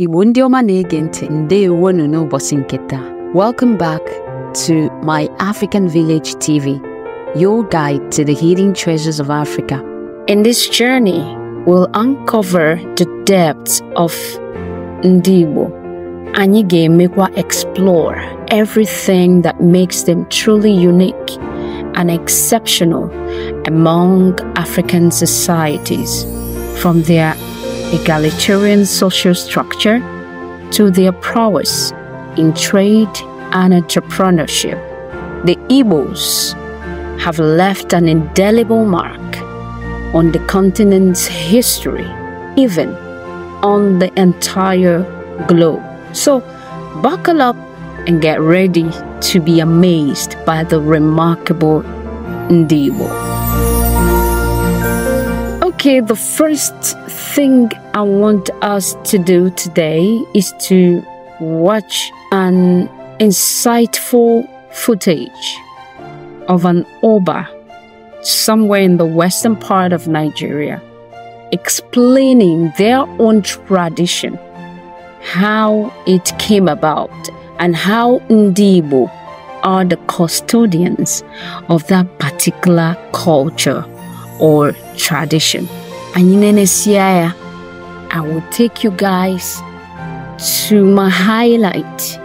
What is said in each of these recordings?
Igbo ndị ọma na-ege ntị ndewonu n'ụbọchị nke taa welcome back to my African Village TV your guide to the hidden treasures of Africa in this journey we'll uncover the depths of ndị Igbo anyị ga-emekwa explore everything that makes them truly unique and exceptional among African societies from their egalitarian social structure to their prowess in trade and entrepreneurship. The Igbos have left an indelible mark on the continent's history, even on the entire globe. So, buckle up and get ready to be amazed by the remarkable Ndibo. Okay, the first thing I want us to do today is to watch an insightful footage of an Oba somewhere in the western part of Nigeria explaining their own tradition, how it came about, and how Ndibo are the custodians of that particular culture or tradition. Anyị I will take you guys to my highlight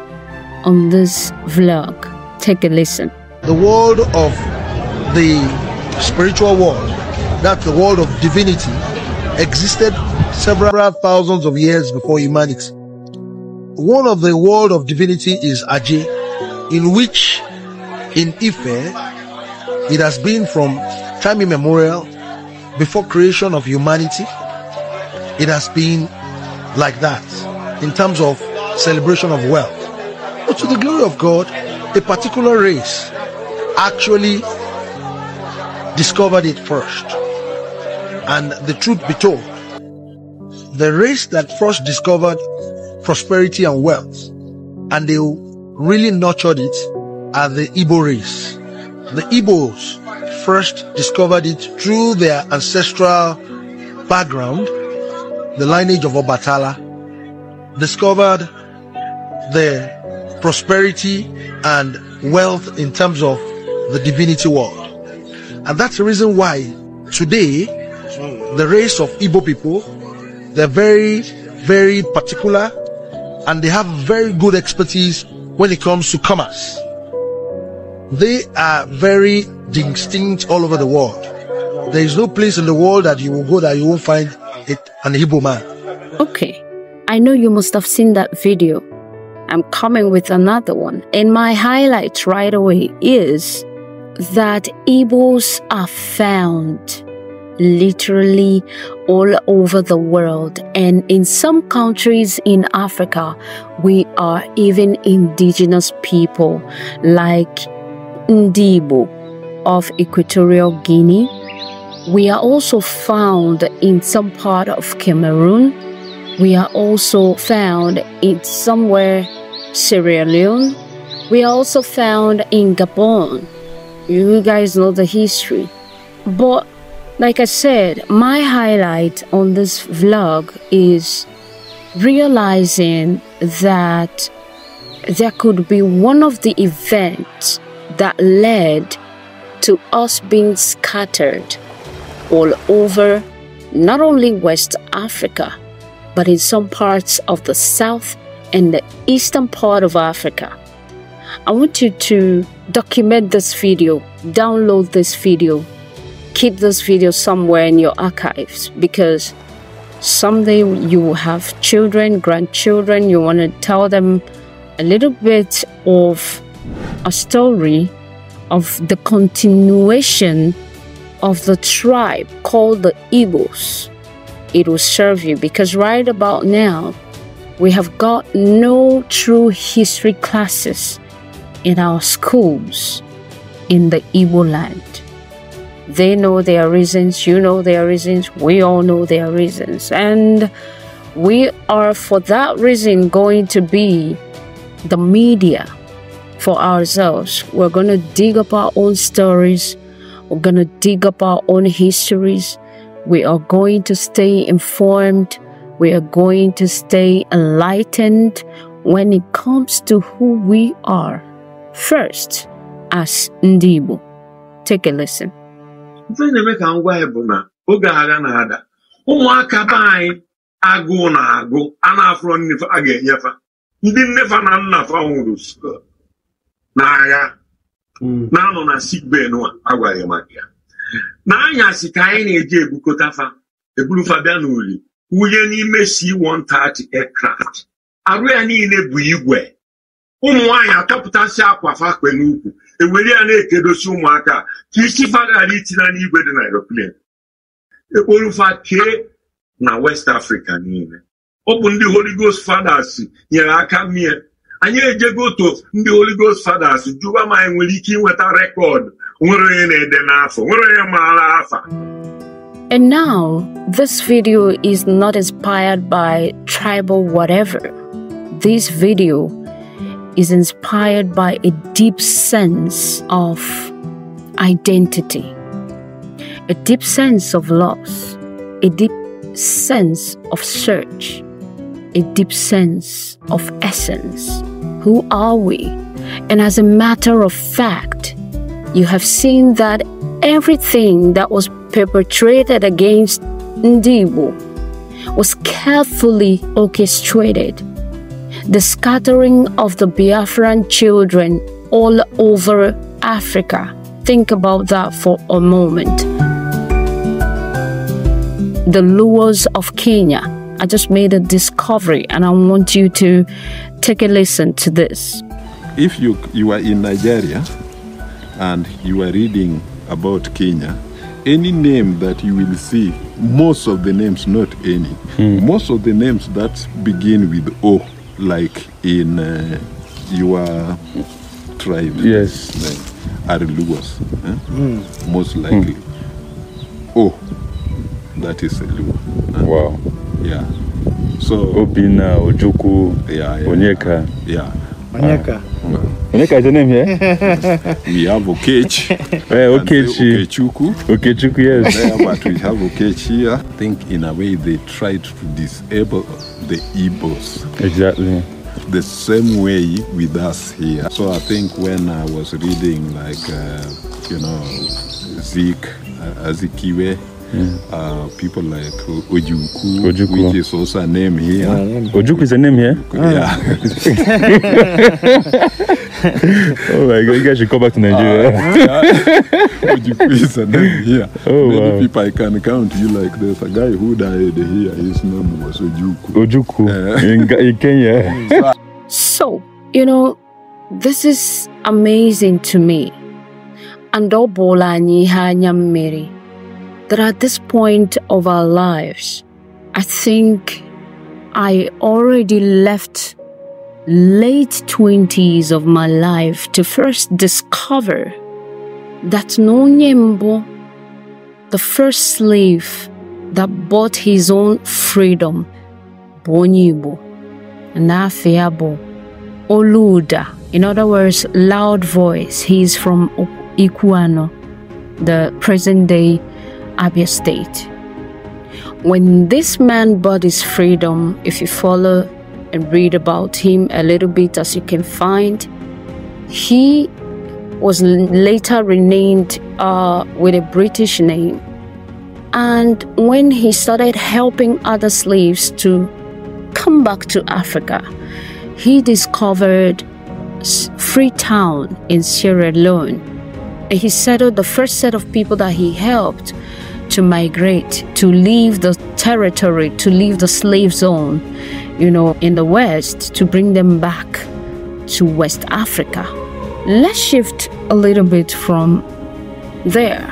on this vlog. Take a listen. The world of the spiritual world, that's the world of divinity, existed several thousands of years before humanity. One of the world of divinity is Aje, in which in Ife, it has been from time immemorial before creation of humanity it has been like that in terms of celebration of wealth. But to the glory of God, a particular race actually discovered it first. And the truth be told, the race that first discovered prosperity and wealth, and they really nurtured it, are the Igbo race. The Igbos first discovered it through their ancestral background the lineage of Obatala, discovered the prosperity and wealth in terms of the divinity world. And that's the reason why today the race of Igbo people, they're very, very particular and they have very good expertise when it comes to commerce. They are very distinct all over the world. There is no place in the world that you will go that you won't find it an Igbo man. Okay. I know you must have seen that video. I'm coming with another one. And my highlight right away is that Igbos are found literally all over the world. And in some countries in Africa, we are even indigenous people like Ndibo of Equatorial Guinea we are also found in some part of Cameroon. We are also found in somewhere Sierra Leone. We are also found in Gabon. You guys know the history. But like I said, my highlight on this vlog is realizing that there could be one of the events that led to us being scattered all over not only West Africa, but in some parts of the south and the eastern part of Africa. I want you to document this video, download this video, keep this video somewhere in your archives because someday you will have children, grandchildren, you want to tell them a little bit of a story of the continuation of the tribe called the Igbos. It will serve you because right about now, we have got no true history classes in our schools in the Igbo land. They know their reasons, you know their reasons, we all know their reasons. And we are, for that reason, going to be the media for ourselves. We're going to dig up our own stories we're going to dig up our own histories. We are going to stay informed. We are going to stay enlightened when it comes to who we are. First, as Ndibo. Take a listen. umuaka be anyi na agu a na-afụrọ a ga ndị na nwụrụ na agha Mm. na-anọ na sikbee nwa agwara maka ya n'anyasị ka anyị na-eji ebukọtafa eburufa bịa n'uli wunye n'ime C-130 aircraft arụ ya niile bụ igwe ụmụ nwaanyị atọpụtasị akwa fakpe n'ukwu ewere ya na-ekedosi ụmụaka ka isi faghara itina n'igwe dị na aeroplane ekporufa kee na West Africa niile ọ bụ ndị Holy Ghost fathers nyere aka mie anyị ejego otu ndị fathers ma anyị nwere ike ịnweta nwere onye na-ede n'afọ nwere onye maara afa And now, this video is not inspired by tribal whatever. This video is inspired by a deep sense of identity, a deep sense of loss, a deep sense of search, a deep sense of essence who are we? And as a matter of fact, you have seen that everything that was perpetrated against Ndibu was carefully orchestrated. The scattering of the Biafran children all over Africa. Think about that for a moment. The Luos of Kenya I just made a discovery and I want you to take a listen to this. If you, you are in Nigeria and you are reading about Kenya, any name that you will see, most of the names, not any, hmm. most of the names that begin with O, like in uh, your tribe, yes, like, uh, are Lugos, eh? Hmm. most likely. Mm. O that is a Luo. Uh, wow. Yeah. So Obina, Ojuku, yeah, yeah, Onyeka. Yeah. Onyeka. Uh, Onyeka is the name here? yes. We have Okechi. Eh, hey, Okechi. Okechuku. Okechuku, yes. but we have Okechi here. I think in a way they tried to disable the Igbos. Exactly. The same way with us here. So I think when I was reading like, uh, you know, Zeke, uh, Azikiwe, yeah. Uh, people like Ojuku, Ojuku, which is also a name here. Yeah, Ojuku is a name here. Yeah. Ah. oh my God! You guys should come back to Nigeria. Uh, yeah. Ojuku is a name here. Oh, Many wow. people I can count. You like there's a guy who died here. His name was Ojuku. Ojuku uh, eh. in, in Kenya. so you know, this is amazing to me. And Obola Nyiha mary that at this point of our lives, I think I already left late 20s of my life to first discover that Nonyembo, the first slave that bought his own freedom, Bonibo, and Afiabo, Oluda, in other words, loud voice. He's from Ikuano, the present day Abia State. When this man bought his freedom, if you follow and read about him a little bit as you can find, he was later renamed uh, with a British name. And when he started helping other slaves to come back to Africa, he discovered Freetown in Sierra Leone. And he settled the first set of people that he helped to migrate, to leave the territory, to leave the slave zone, you know, in the West, to bring them back to West Africa. Let's shift a little bit from there.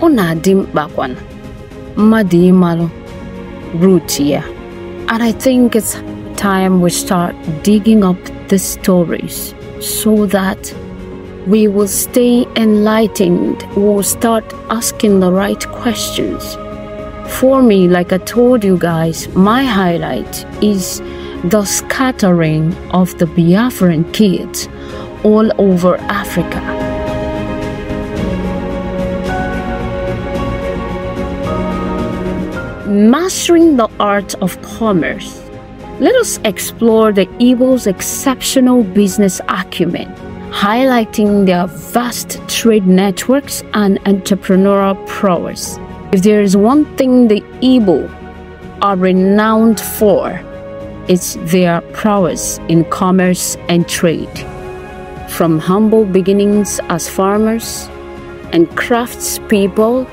Ọ na-adị mkpa kwana root here. And I think it's time we start digging up the stories so that we will stay enlightened, we'll start asking the right questions. For me, like I told you guys, my highlight is the scattering of the Biafran kids all over Africa. Mastering the Art of Commerce. Let us explore the evil's exceptional business acumen highlighting their vast trade networks and entrepreneurial prowess. If there is one thing the Igbo are renowned for, it's their prowess in commerce and trade. From humble beginnings as farmers and craftspeople,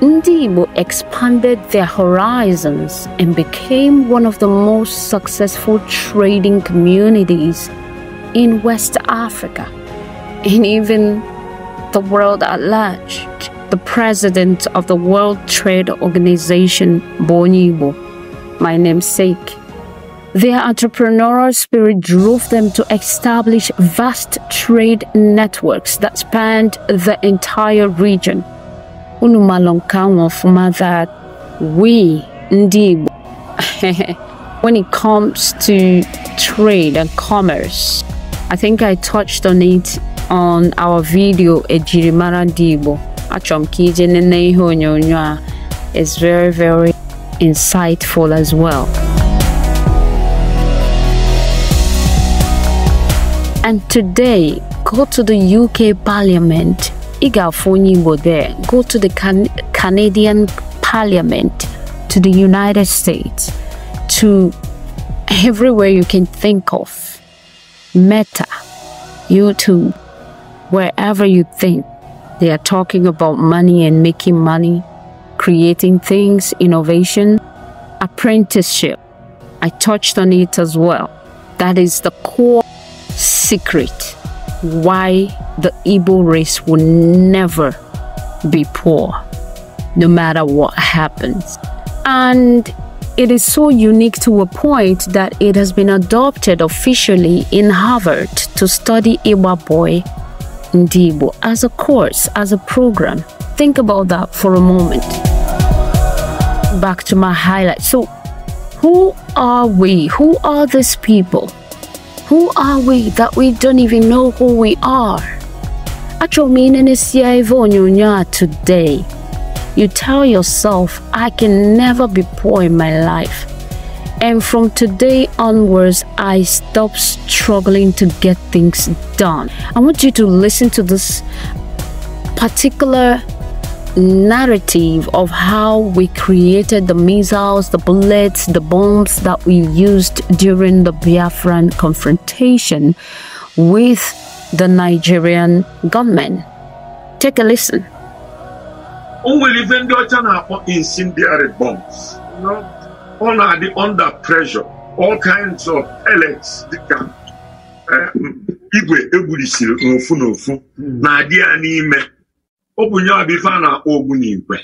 Ndi expanded their horizons and became one of the most successful trading communities in West Africa, and even the world at large. The president of the World Trade Organization, Bonibo, my namesake, their entrepreneurial spirit drove them to establish vast trade networks that spanned the entire region. that we, Ndibo, when it comes to trade and commerce, I think I touched on it on our video ejirimara ndị Igbo A m ka ije nene ihe is very very insightful as well and today go to the UK Parliament ị ga-afụ there go to the can Canadian Parliament to the United States to everywhere you can think of Meta, YouTube, wherever you think they are talking about money and making money, creating things, innovation, apprenticeship. I touched on it as well. That is the core secret why the Igbo race will never be poor, no matter what happens. And it is so unique to a point that it has been adopted officially in Harvard to study Iwa Boy Ndibo as a course, as a program. Think about that for a moment. Back to my highlight. So, who are we? Who are these people? Who are we that we don't even know who we are? Achọrọ meaning is sie ife onyonyo a today you tell yourself, I can never be poor in my life. And from today onwards, I stop struggling to get things done. I want you to listen to this particular narrative of how we created the missiles, the bullets, the bombs that we used during the Biafran confrontation with the Nigerian gunmen. Take a listen. o nwere ife ndị ọcha na-akpọ incendiary bombs ọ na-adị under pressure all kinds of pellets dịka eh, igwe egburisiri n'ofu n'ofu hmm. na-adị ya n'ime ọ bụ nyewa bụ a na-akpọ ogbunigwe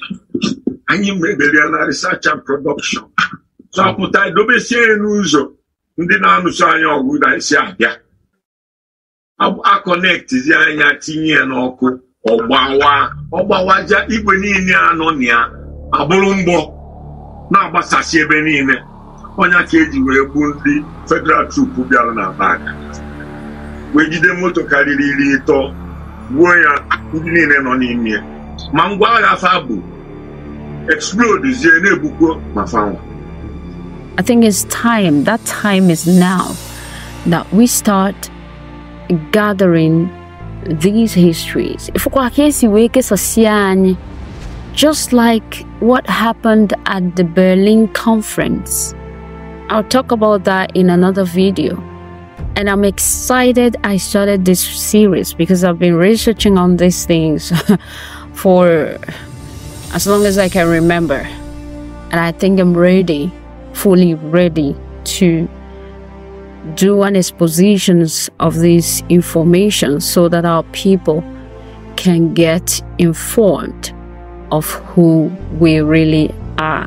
anyị meberiela research and production zapụta dobesie n'ụzọ ndị na-anụso anya ọgụ ga-esi abịa akọnektizi anya tinye ya n'ọkụ ọgbawa ọgbawaja igwe niile anọ na ya abụrụ mgbọ na-agbasasị ebe niile onye ka eji wee gbuo ndị federal troop bịara na bak wee jide moto karịrị iri ịtọ gbuo ya ndị niile nọ n'ime ma ngwa agha fa bụ explodezie na-egbukwo ma fanwa I think it's time, that time is now that we start gathering these histories. Just like what happened at the Berlin conference. I'll talk about that in another video. And I'm excited I started this series because I've been researching on these things for as long as I can remember. And I think I'm ready, fully ready to do an exposition of this information so that our people can get informed of who we really are.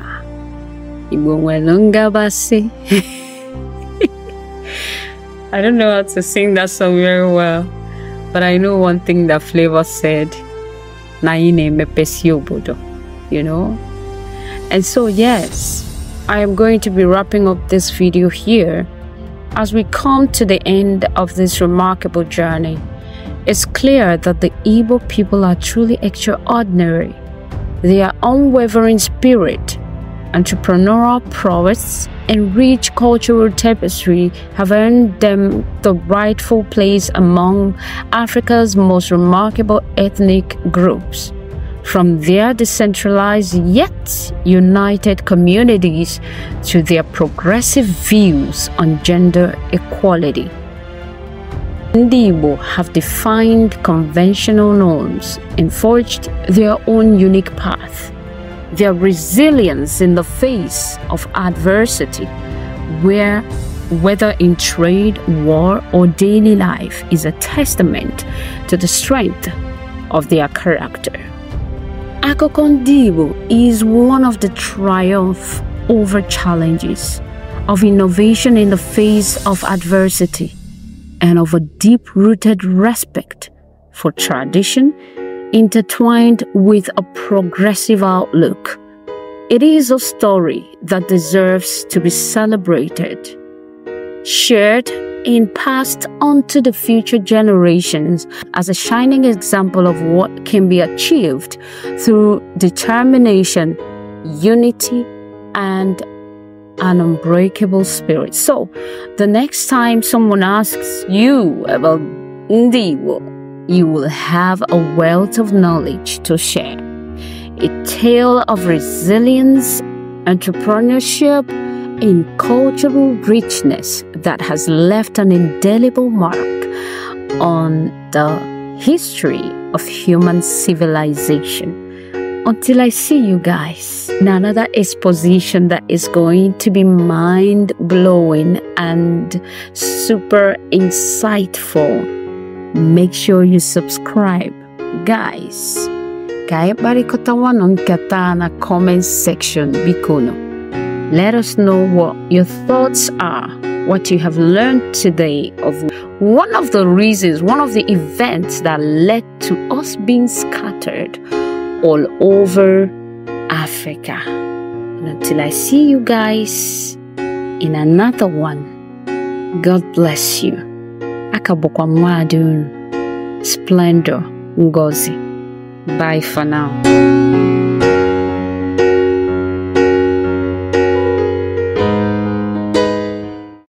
I don't know how to sing that song very well, but I know one thing that Flavor said, you know? And so, yes, I am going to be wrapping up this video here. As we come to the end of this remarkable journey, it's clear that the Igbo people are truly extraordinary. Their unwavering spirit, entrepreneurial prowess, and rich cultural tapestry have earned them the rightful place among Africa's most remarkable ethnic groups from their decentralized yet united communities to their progressive views on gender equality. Ndibo have defined conventional norms and forged their own unique path. Their resilience in the face of adversity, where whether in trade, war, or daily life, is a testament to the strength of their character. Akokondibo is one of the triumph over challenges, of innovation in the face of adversity, and of a deep-rooted respect for tradition intertwined with a progressive outlook. It is a story that deserves to be celebrated, shared, and passed on to the future generations as a shining example of what can be achieved through determination, unity, and an unbreakable spirit. So, the next time someone asks you about Ndiwo, you will have a wealth of knowledge to share. A tale of resilience, entrepreneurship, in cultural richness that has left an indelible mark on the history of human civilization. Until I see you guys another exposition that is going to be mind blowing and super insightful, make sure you subscribe. Guys, kaya barikota wanon kata na comment section bikono. Let us know what your thoughts are, what you have learned today of one of the reasons, one of the events that led to us being scattered all over Africa. And until I see you guys in another one, God bless you. Akabokwa Madun, Splendor, Ngozi. Bye for now.